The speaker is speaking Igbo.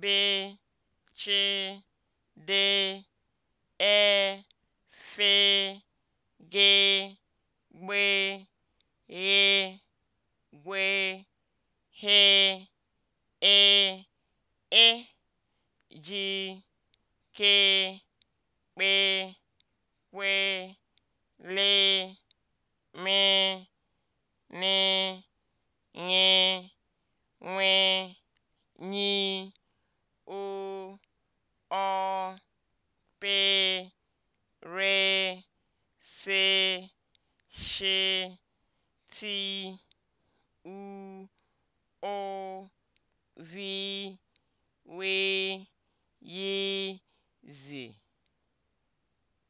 be chee de ee fee gee gbe re gwee hee ee ejiri kee kpee kpee lee re seshe o vi we yezi